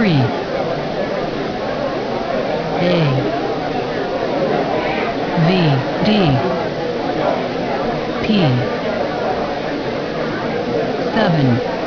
three, A, V, D, P, seven,